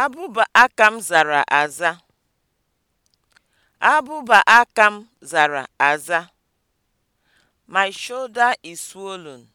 Abụba akam zara aza. Abụba akam zara aza. My shoulder is swollen.